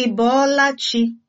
Ị bọọla chi?